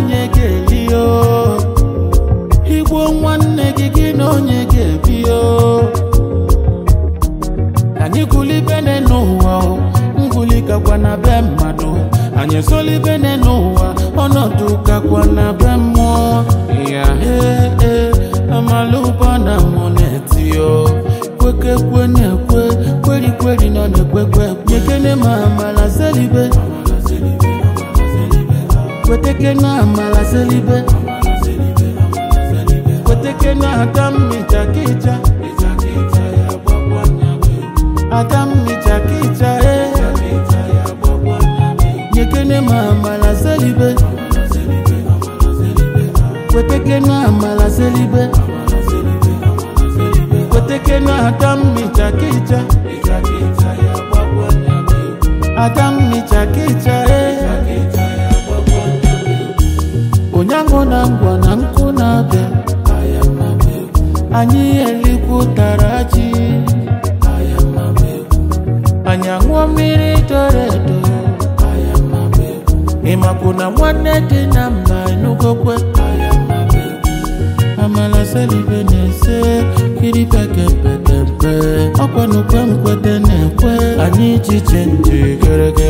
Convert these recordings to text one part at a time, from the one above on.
onye ga-eli igbuo nwanne gị gị na onye ga-ebi anyị gụlibene n'ụwa ngụli gakwa na be mmadụ anyị ezolibene n'ụwa ọnọdụ gakwa na be mmụọ ya ee amalụba na monetio kwekekwe na-ekwe kwerikweri ọ na-ekwekwe nyekene kwetekena amala selibe kwetekena atammicha kicha atammicha kicha eh. nyekene ma maamala selibe kwetekena amala selibe kwetekena atammicha kicha atammicha kicha aṅụ na ngwa na nkụ na-abịa anyị tara ji anyị aṅụọ mmiri doro edo ịmapụ na nwanne dị na mba enugokwe amala selibe na-ese kiri pekempekempe ọkwanukwe nkwete na-ekwe anyị ji chenji geregere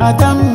Adam